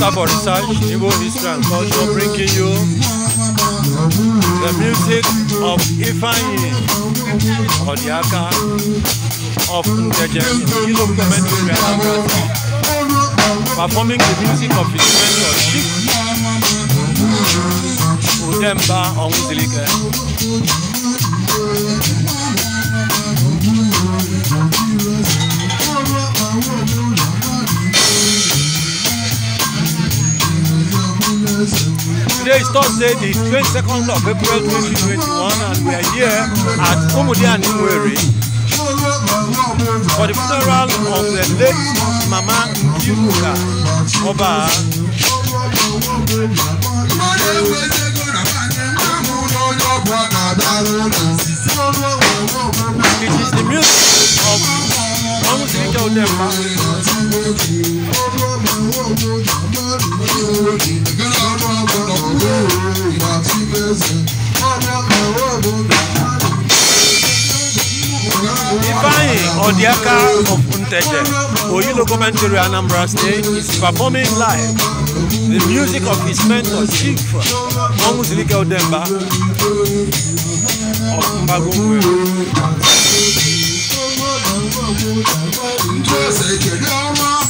Center for Research, Igbo History and Culture, bringing you the music of Ifeanyi Odiaka of Ndejem in Igbo performing the music of his mentor, Chief Udemba Onwuzilike. Today is Thursday, the 22nd of April 2021, and we are here at Omudia Nimwere for the funeral of the late Mama Nkiruka Oba. It is the music of Omudia Odemba. Odiaka of Unteje, Oyilo Commentary Anambra State, is performing live the music of his mentor, Chief Monguzilike Odemba of Mbagongwe. Ndwese kedama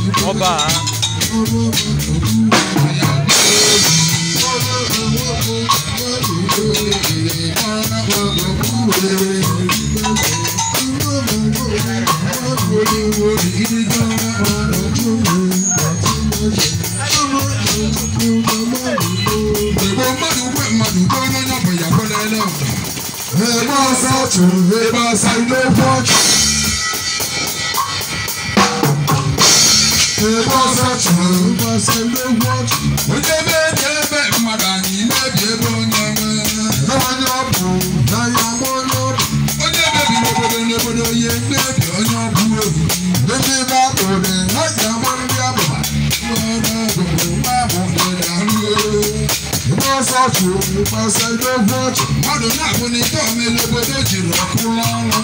ọba. Eba sa tu, eba sa ilé pọ́ọ̀kì. ụbọchị ndị onye na-ebi ebe mmadụ anyị na-ebi ebe onye onye ọ bụ n'anya onye ọ bụ onye mebiri obodo n'obodo onye na-ebi onye ọ bụ obi ndị na-akpụrụ sọọtù pẹsẹ lógún ọtù mọdù náà mú ní tó mi lóbodò jìnnà kú lọrọ.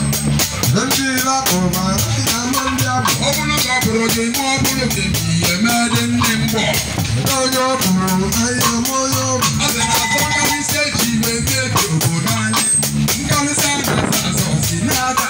ndị lakọ ma ya mụ ndị abụ. ọ bụrụ na ọ bụrụ gị ma ọ bụrụ gị bi eme dị ndị mgbọ. onye ọ bụrụ ahịa m onye ọ bụ. ọ dị na afọ nkarịsị eji wee mebie obodo anyị nkarịsị a na-azọ si na-ada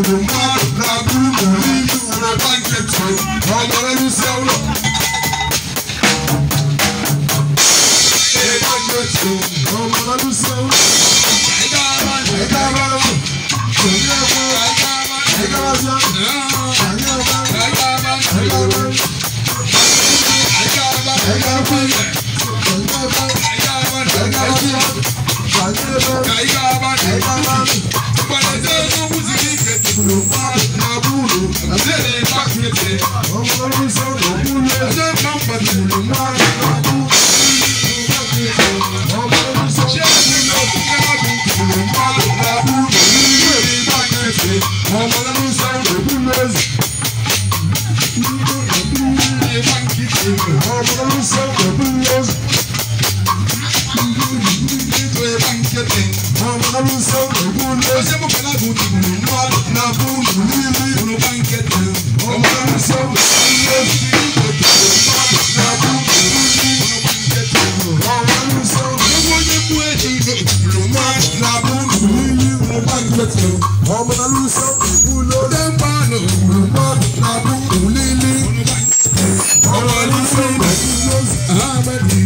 Thank the I'm gonna I am rule you. I'm telling you, ọmọ alúṣọ kùkú lóde ń bá nù gbọ́ abúkù lílí ọmọ alúṣọ kùkú lóṣù àmẹ́lì.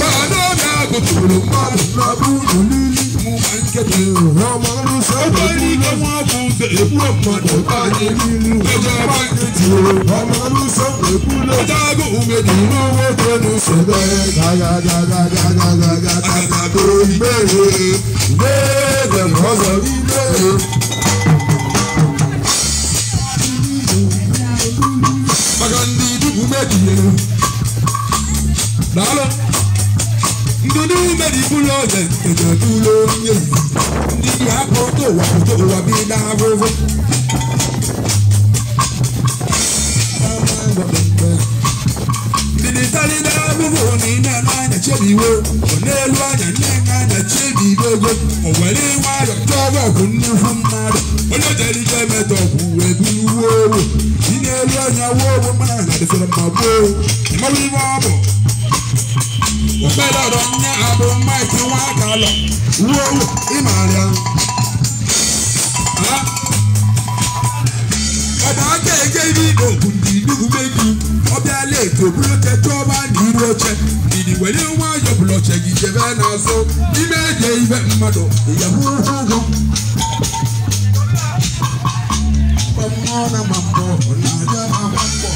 Bàdóga kùtùrù mọ́lù lọ́bùrù lílí mú máa ń kéde ọmọ alúṣọ kùkú lóṣù èkú ọmọdé báyé nínú ọjọ́ báyé tì ó ọmọ alúṣọ kùkú lóṣù ọjọ́ àgùnmẹ̀dì lówó tó ní sọ̀rọ̀ ẹ̀ gàgàgàgàgàgàgàgàgà tó ìbéèrè ìbéèrè lọ́sọ̀ ìbéèrè. maka ndị dukwu mebie daalụ ndị dukwu mebibulu oge ejatulo onye ndị dị akpọ towa towa bi na ahụhụ ndị dị talida ebubo na ime anya chebiwo n'elu anya nnenna anya chebibe ego o were nwayọ tọba bụ nnukwu mmadụ onye jere ike metọpụ wee buru owo si n'elu anya wuo ogbo mmanya na dịsịrị mma gboo ịmarụ ibe ọ bụ ọkpedọdọ nne abụ maịkị nwa aka lọ wuo owo ịmara ya ege ibi ogun di inugu meju ọbịa leti obuloche chọba na iru oche idi were nwayọ bụlọche gị jebe n'azụ n'ime eje ibe mmadụ ịyahụ ụgwọ ụgwọ na ma mbọ na-aga ma mbọ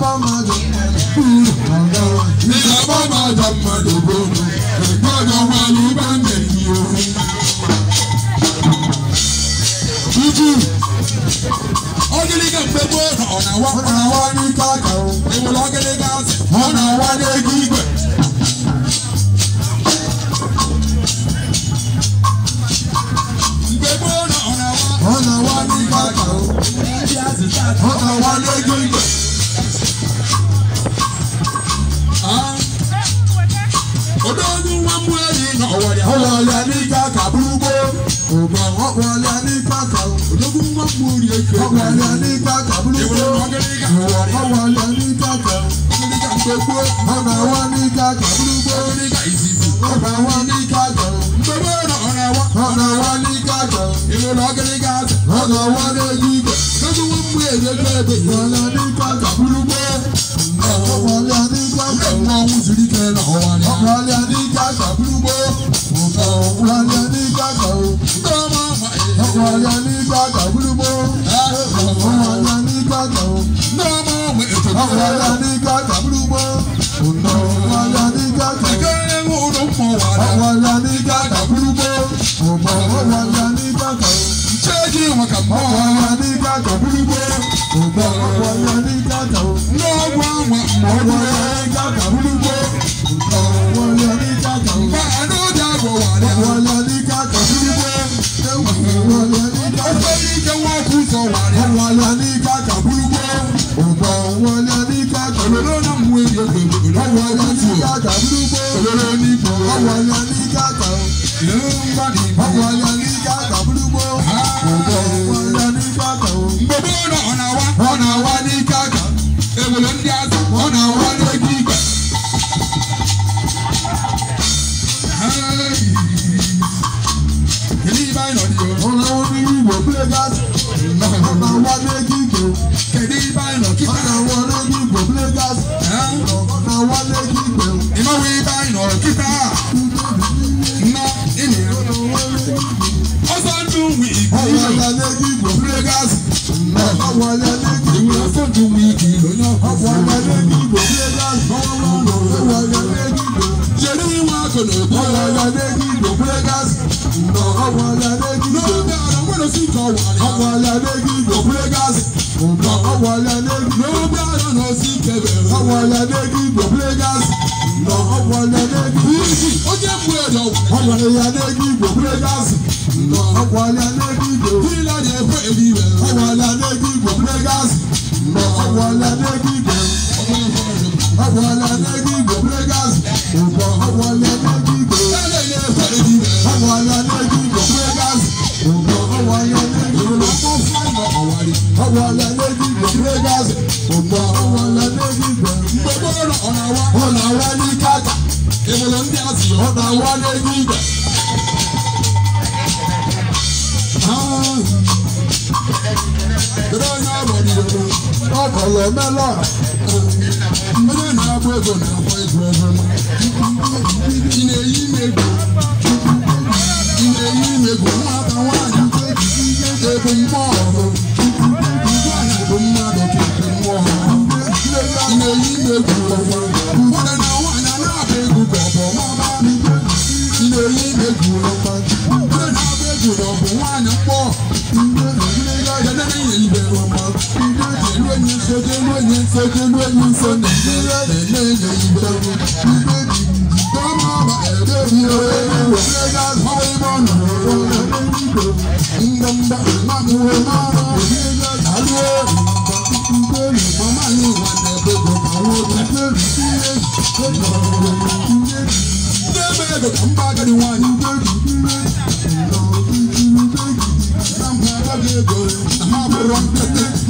bọ́mọdé kúrò ọ̀dọ́ ìjà bọ́mọdé ọmọdé bọ́mọdé ẹ̀gbọ́dọ̀ wà ní bàǹdẹ̀ yìí o. Jújú ogiliga gbẹgbẹ ọ̀nà wa ní káàkiri ìwòlò gbàgbà búlúkọ ìwọ kọ wọlé ní gbàgbà gbogbo ọ̀nà wa ní gbàgbà búlúkọ ọ̀nà wàlá ní gàgà múlùmọ́. Ọ̀nà wàlá ní gàgà. Ẹ̀kẹ́rẹ́ wo ló mọ wàlá? Wàlá ní gàgà múlùmọ́. Ọmọ wàlá ní gàgà. Ṣéèjì wọn kà mọ́. Wàlá ní gàgà múlùmọ́. Ọmọ wàlá ní gàgà. Lọ́ wà wà mọ́ wàlá ní gàgà múlùmọ́. Ọ̀nà wàlá ní gàgà. Bàánú dàgbọ̀ wàlá. Wàlá ní gàgà múlùmọ́. Ọ̀nà wàlá ní gàgà. Ó fẹ́ yí kẹ́ wọ́n kùtù olóró ní gbòòrò. ọwọ́ ni a ní gàgà o. ìlú ń bá ní ìbò. ọwọ́ ni a ní gàgà burúkú. ọwọ́ ni a ní gàgà o. gbogbo ọ̀nà ọ̀nà wa. ọ̀nà wa ní gàgà. èwòlò ń di azọ. ọ̀nà wa ní gbígbà. èyí bá ìnàdí o. ọ̀nà wa ní wíwò pílẹ̀ gáàsì. ọ̀nà wa ní gígbò. kẹ̀dí bá Lagos nǹkan ọ̀wọ̀lẹ̀ lẹ́gbẹ̀ẹ́ lórí àrùn sí kẹfẹ́ ọ̀wọ̀lẹ̀ lẹ́gbẹ̀ẹ́ Lagos nǹkan ọ̀wọ̀lẹ̀ lẹ́gbẹ̀ẹ́ ó jẹ́ fún ẹ̀dọ̀ ọ̀wọ̀lẹ̀ lẹ́gbẹ̀ẹ́ Lagos nǹkan ọ̀wọ̀lẹ̀ lẹ́gbẹ̀ẹ́ kí lọ́dẹ̀ fún èdè rẹ̀ ọ̀wọ̀lẹ̀ lẹ́gbẹ̀ẹ́ Lagos nǹkan ọ̀wọ̀lẹ̀ lẹ́gbẹ̀ẹ́ ọ̀wọ̀lẹ̀ lẹ́gbẹ̀ẹ́ Lagos nǹkan ọ̀wọ̀lẹ̀ lẹ́gbẹ̀ẹ́. ọ̀nà wa ní kàkà ìmọ̀lẹ̀ ndị azì ọ̀nà wa ni n'ego igwe. Kedu onye agbanyere ọkọlọ mela onye na-agba ego na-agba ego ego ị na-eyi m ego ị na-eyi m ego nwata nwaanyị ego mmụọ ọhụrụ you eyi na-egwu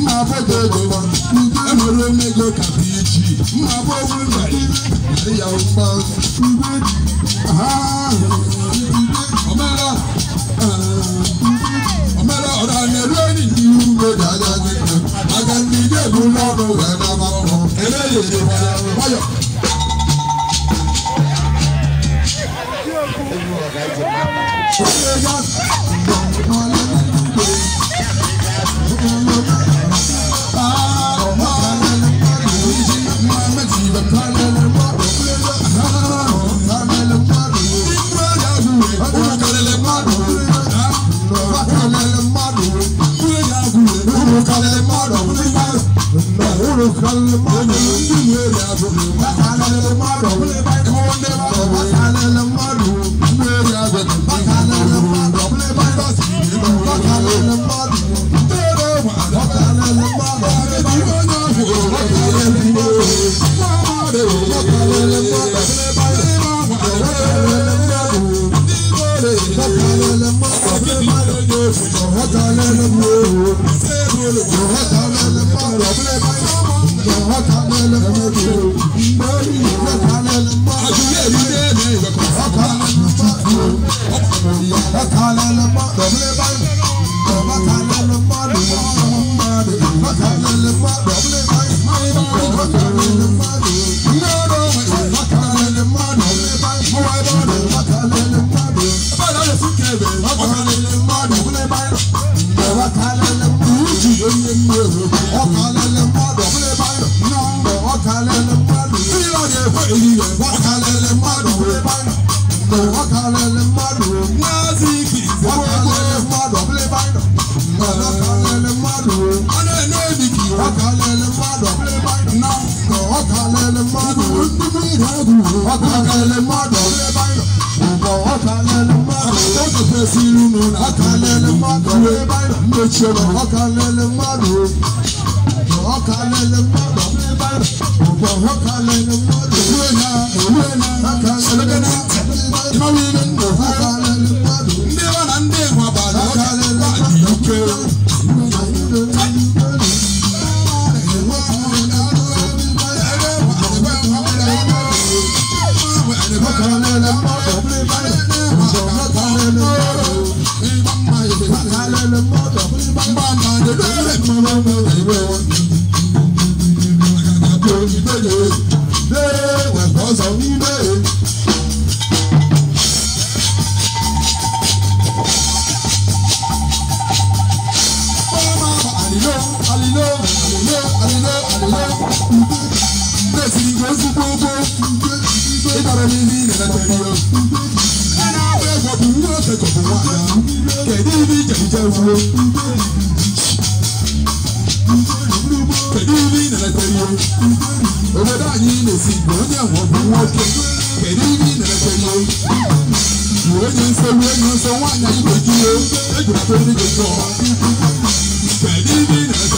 ma bọdọ ego wa ugbo enwere m ego ka bụ iji ma bọ ọhụrụ narị narị ya mgba ugbo omera omera ọ na-eru enyi ndị ugbo ga-aga gị aga ndị ga-ebu n'ọrụ wee naba ọrụ ere ya ere nwayọ Oh, my God. Problem. i ọ̀kàlẹ̀lẹ̀ mmadụ ọ̀bụla ebe anyị nọ nna ọ na-esi iru n'ụlọ ọka lele mmadụ mechiri ọka lele mmadụ ọka lele mmadụ ọka lele mmadụ ìwé lẹ́sìn ìwé sí gbogbo ìbára mi ní ìlànà tẹ̀lé o. ẹnà abẹ́ ìwọ̀bù ń wọ́n tẹ̀kọ̀ fún wa náà kẹ̀dí ní ìjẹ̀jẹ̀ wo. kẹ̀dí ní ìlànà tẹ̀lé o. òbẹ̀dá yìí lè sí ìgbọ̀n ní àwọn ọ̀bùn wọn kẹ kẹ̀dí ní ìlànà tẹ̀lé o. ìwé ni ń sọ ìwé ni ń sọ wọn àyà ìgbèjì o. ẹ̀jọ̀ tó ní gbèjì ọ̀ kẹ̀dí ní ìlànà tẹ̀lé o.